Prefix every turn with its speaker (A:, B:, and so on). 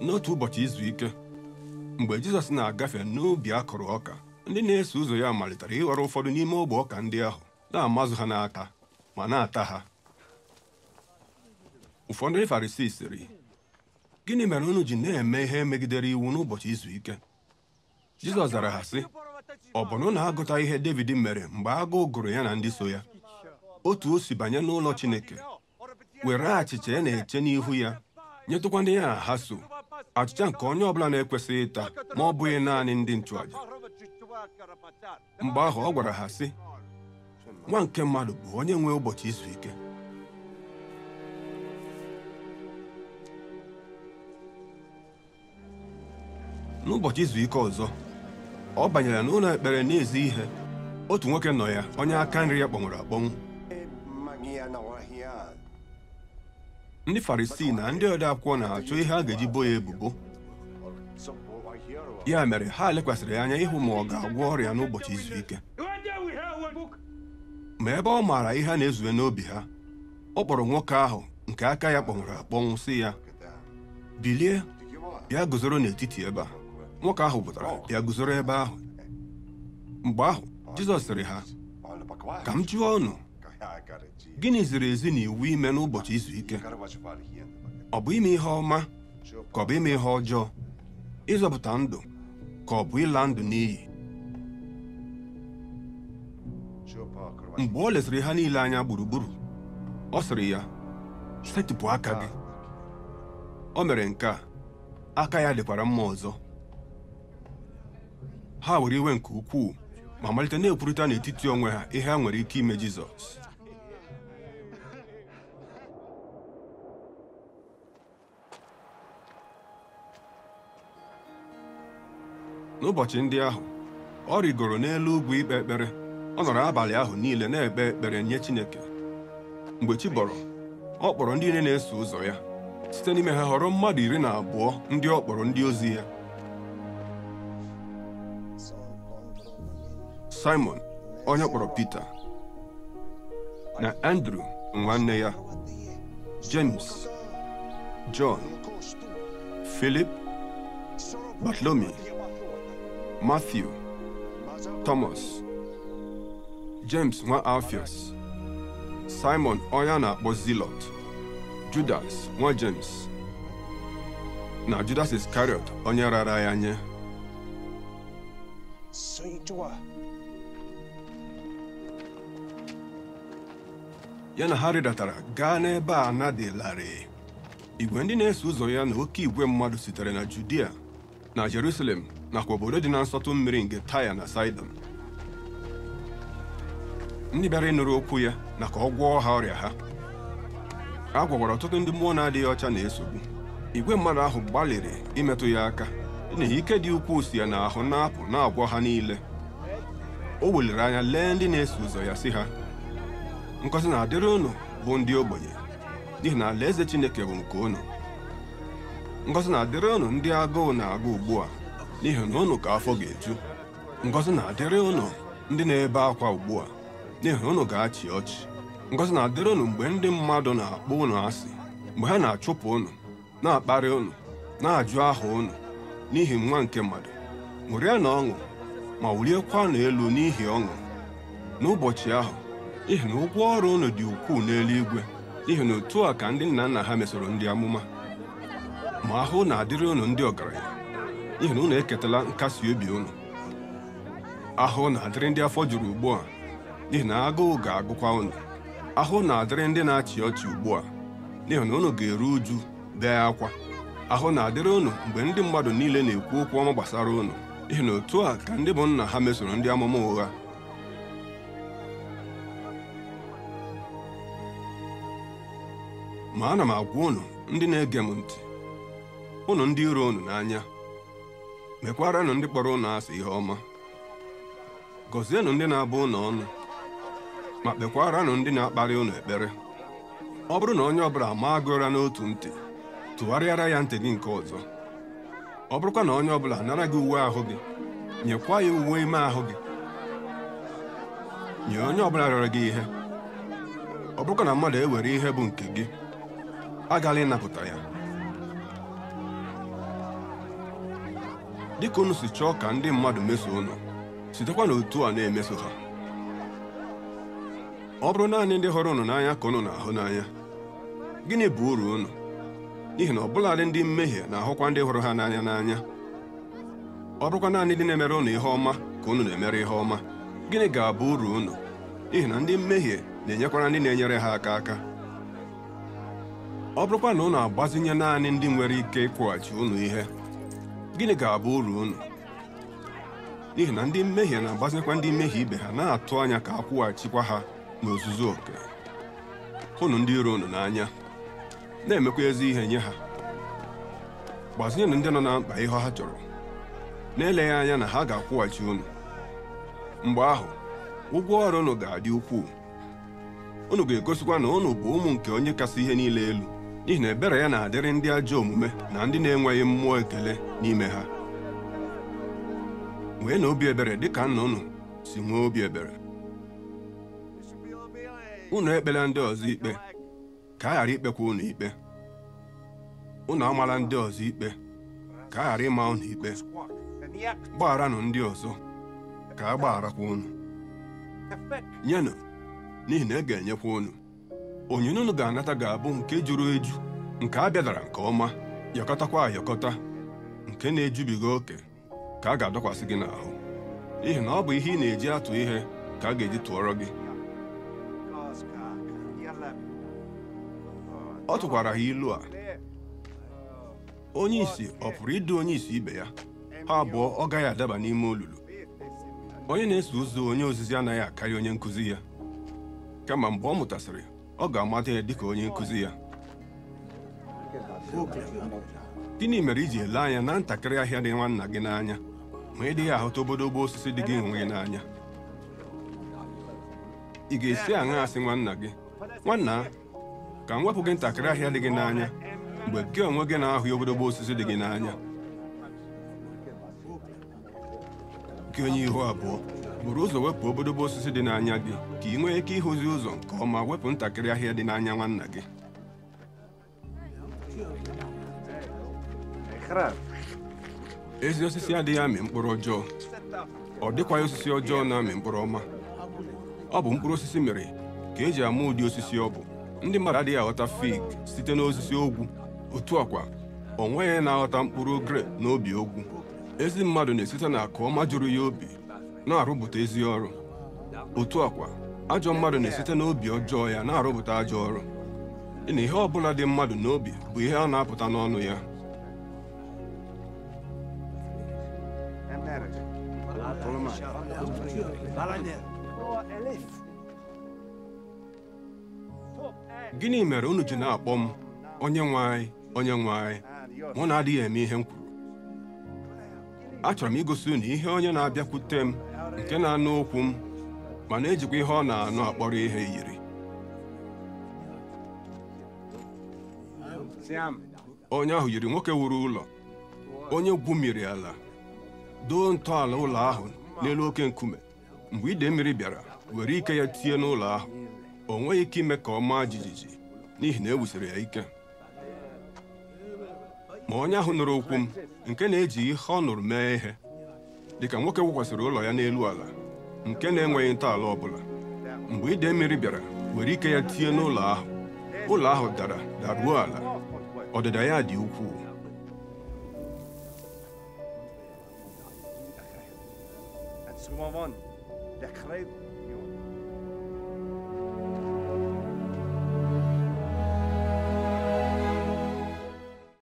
A: n'otu ụbọchị izu ike mgbe jizọs na-agafe n'ubi a kụrụ ọka ndị na-eso ụzọ ya malitere ịghọrọ ụfọdụ n'ime ogbe ọka ndị ahụ na-amazụ ha n'aka ma na-ata ha ụfọdụ ndị farisii sịrị gịnị mere unu ji na-eme ihe megidere iwu n'ụbọchị izu ike jizọs zara ha sị ọ bụ na agụta ihe david mere mgbe agụụ gụrụ ya na ndị so ya otu o si banye n'ụlọ chineke were achịcha ya e na-eche n'ihu ya nyetụkwa ndị ya na ha so achịcha nke onye ọbụla na-ekwesịghị ịta ma ọ bụghị naanị ndị nchụaja mgbe ahụ ọ gwara ha sị nwa nke mmadụ bụ onye nwe ụbọchị izu ike n'ụbọchị izu ike ọzọ ọ banyere n'ụlọ ekpere na ezu ihe otu nwoke nọ ya onye aka nri ya kpọnwụrụ akpọnwụ ndị farisii na ndị ode akwụkwọ na-achọ ihe a ga-eji bo ya ebubo ya mere ha lekwasịrị anya ịhụ ma ọ ga-agwọ ọrịa n'ụbọchị izu ike ma ebe ọ maara ihe a na-ezue n'obi ha ọ kpọrọ nwoke ahụ nke aka ya kpọnwụrụ akpọnwụ sị ya bilie bịa guzoro n'etiti ebe a nwoke ahụ pụtara bịa guzoro ebe ahụ mgbe ahụ Jizọs sịrị ha ka m jụọ ọnụ. gịnị ziri ezi na iwu ime n'ụbọchị izu ike ọ bụ ime ihe ọma ka ọ bụ ime ihe ọjọọ ịzọpụta ndụ ka ọ bụ ịla ndụ n'iyi mgbe ọ lesịrị ha niile anya gburugburu ọ sịrị ya setịpụ aka gị o mere nke a aka ya dịkwara mma ọzọ ha were iwe nke ukwuu ma malite na-ekwurịta n'etiti onwe ha ihe ha nwere ike ime Jizọs n'ụbọchị ndị ahụ ọ rigoro n'elu ugwu ikpe ekpere ọ nọrọ abalị ahụ niile na-ekpe ekpere nye Chineke mgbe chi ọ kpọrọ ndị niile na-eso ụzọ ya site n'ime ha họrọ mmadụ iri na abụọ ndị ọ kpọrọ ndị ozi ya Simon onye kpọrọ Pita na Andrew nwanne ya James John Philip Bartolomi Matthew, Thomas, James nwa Alfias, Simon onye na-akpọ Zilọt Judas nwa James na Judas Iscariot onye rara ya nye ya na ha redatara gaa n'ebe a igwe ndị na-eso ụzọ ya na oke igwe mmadụ sitere na Judia na Jerusalem nakwa obodo dị na nsọtụ mmiri nke taya na saidon ndị bịara ịnụrụ okwu ya na ka ọ gwọọ ha ọrịa ha a gwagwara ọtụtụ ndị mmụọ na-adịghị ọcha na-esogbu igwe mmadụ ahụ gbalịrị imetụ ya aka n'ihi ike dị ukwuu si ya na ahụ na-apụ na-agwọ ha niile o weliri anya lee ndị na-eso ụzọ ya si ha Nkọzi na-adịrị ụnụ bụ ndị ogbenye n'ihi na alaeze Chineke bụ nke unu Nkọzi na-adịrị ụnụ ndị agụụ na-agụ ugbu a n'ihi na ụnụ ka afọ ga-eju ngọzi na-adịrị ụnụ ndị na-ebe akwa ugbu a n'ihi ụnụ ga-achị ọchị ngozi na-adịrị ụnụ mgbe ndị mmadụ na-akpọ ụnụ asị mgbe ha na-achụpụ ụnụ na-akparị ụnụ na-ajụ aha ụnụ n'ihi nwa nke mmadụ ṅụrịa na ọṅụ ma wụliekwanụ elu n'ihi ọṅụ n'ụbọchị ahụ ihi na ụgwọ ọrụ ụnụ dị ukwuu n'eluigwe n'ihi na otu a ka ndị nna nna ha mesoro ndị amụma ma ahụ na-adịrị ụnụ ndị ọgaranya n'ihi na unu eketala nkasi obi unu ahụ na-adịrị ndị afọ juru ugbu a n'ihi na agụụ ga-agụkwa unu ahụ na-adịrị ndị na-achị ọchị ugbu a n'ihi na unu ga-eru uju bee akwa ahụ na-adịrị unu mgbe ndị mmadụ niile na-ekwu okwu ọma gbasara unu n'ihi na otu a ka ndị bụ nna ha mesoro ndị amụma ụgha ma ana m agwa unu ndị na-ege m ntị ụnụ ndị iro unu n'anya mekwaranụ ndị kpọrọ ụnụ asị ihe ọma gọzienụ ndị na-abụ ụnụ ọnụ ma kpekwaranụ ndị na-akparị ụnụ ekpere ọ bụrụ na onye ọbụla maa gụra n'otu ntị tụgharịara ya ntị gị nke ọzọ ọ bụrụkwa na onye ọbụla nara gị uwe ahụ gị nyekwa ya uwe ime ahụ gị nye onye ọbụla rịọrọ gị ihe ọ bụrụkwa na mmadụ ewere ihe bụ nke gị agaghị ịnapụta ya ka unu si chọọ ka ndị mmadụ meso unu sitekwa n'otu a na-emeso ha ọ bụrụ naanị ndị hụrụ unu n'anya ka unu na-ahụ n'anya gịnị bụ uru unu n'ihi na ọbụladị ndị mmehie na-ahụkwa ndị hụrụ ha n'anya n'anya ọ bụrụkwa naanị ndị na-emere unu ihe ọma ka unu na-emere ihe ọma gịnị ga-abụ uru unu n'ihi na ndị mmehie na-enyekwara ndị na-enyere ha aka aka ọ bụrụkwa na ụnụ agbazinye naanị ndị nwere ike ịkwụghachi unu ihe gịnị ga-abụ uru unu n'ihi na ndị mmehie na-agbazikwa ndị mmehie ibe ha na-atụ anya ka a kwụghachikwa ha n'ozuzu oke hụnụ ndị iro unu n'anya na-emekwa ezi ihe nye ha gbazinyenụ ndị nọ na mkpa ihe ha chọrọ na-eleghị anya na ha ga-akwụghachi unu mgbe ahụ ụgwọ ọrụ unu ga-adị ukwuu unu ga-egosikwa na unu bụ ụmụ nke onye kasị ihe niile elu n'ihi na ebere ya na-adịrị ndị ajọ omume na ndị na-enweghị mmụọ ekele n'ime ha nwee na obi ebere ka nna unu si nwee obi ebere unu ekpela ndị ọzọ ikpe ka a ghara ikpekwa unu ikpe unu amala ndị ọzọ ikpe ka a ghara ịma unu ikpe gbagharanụ ndị ọzọ ka a gbagharakwa unu nyenụ n'ihi na e ga-enyekwa unu onyinye unu ga-anata ga-abụ nke juru eju nke a bịadara nke ọma yọkọtakwa ayọkọta nke na-ejubiga oke ka a ga-adọkwasị gị n'ahụ n'ihi na ọ bụ ihe ị na-eji atụ ihe ka a ga-eji tụọrọ gị ọ tụkwara ha ilu a onye isi ọ pụrụ ịdị onye isi ibe ya ha abụọ ọ gaghị adaba n'ime olulu onye na-eso ụzọ onye ozizi anaghị akarị onye nkụzi ya kama mgbe ọ mụtasịrị ọ ga-amata ya ka onye nkụzi ya gịnị mere iji ele anya na ntakịrị ahịa dị nwanna gị n'anya ma ị dịghị ahụta obodobo osisi dị gị onwe gị n'anya ị ga-esi aṅa asị nwanna gị nwanna ka m wepụ gị ntakịrị ahịa dị gị n'anya mgbe gị onwe gị na-ahụ obodobo osisi dị gị n'anya gị onye ihu abụọ buru ụzọ wepụ obodobo osisi dị n'anya gị ka ị nwee ike ịhụzi ụzọ nke ọma wepụ ntakịrị ahịa dị n'anya nwanna gị ezi osisi adịghị amị mkpụrụ ọjọọ ọ dịkwaghị osisi ọjọọ na-amị mkpụrụ ọma ọ bụ mkpụrụ osisi mere ka eji ama ụdị osisi ọ bụ ndị mmadụ adịghị aghọta fig site n'osisi ogwu otu ọkwa o nweghị na-aghọta mkpụrụ grape n'obi ogwu ezi mmadụ na-esite na akụ ọma jụrụ ya obi na-arụpụta ezi ọrụ otu ọkwa ajọ mmadụ na-esite n'obi ọjọọ ya na-arụpụta ajọ ọrụ na ihe ọbụla dị mmadụ n'obi bụ ihe ọ na-apụta n'ọnụ ya gịnị mere unu ji na-akpọ m onye nwe anyị onye nwe anyị mụ na-adịghị eme ihe m achọrọ m igosi unu ihe onye na-abịakwute m nke na-anụ okwu m ma na-ejikwa ihe ọ na-anụ akpọrọ ihe yiri onye ahụ yiri nwoke wuru ụlọ onye gwumiri ala doo ntọala ụlọ ahụ n'elu oke nkume mgbe ide mmiri bịara were ike ya tie n'ụlọ ahụ o nweghị ike ime ka ọ maa jijiji n'ihi na e wusiri ya ike ma onye ahụ nụrụ okwu m nke na-eji ihe ọ nụrụ mee ihe dịka nwoke wụkwasịrị ụlọ ya n'elu ala nke na-enweghị ntọala ọbụla mgbe ịda mmiri bịara nwere ike ya tie n'ụlọ ahụ ụlọ ahụ dara daruo ala ọdịda ya dị ukwuu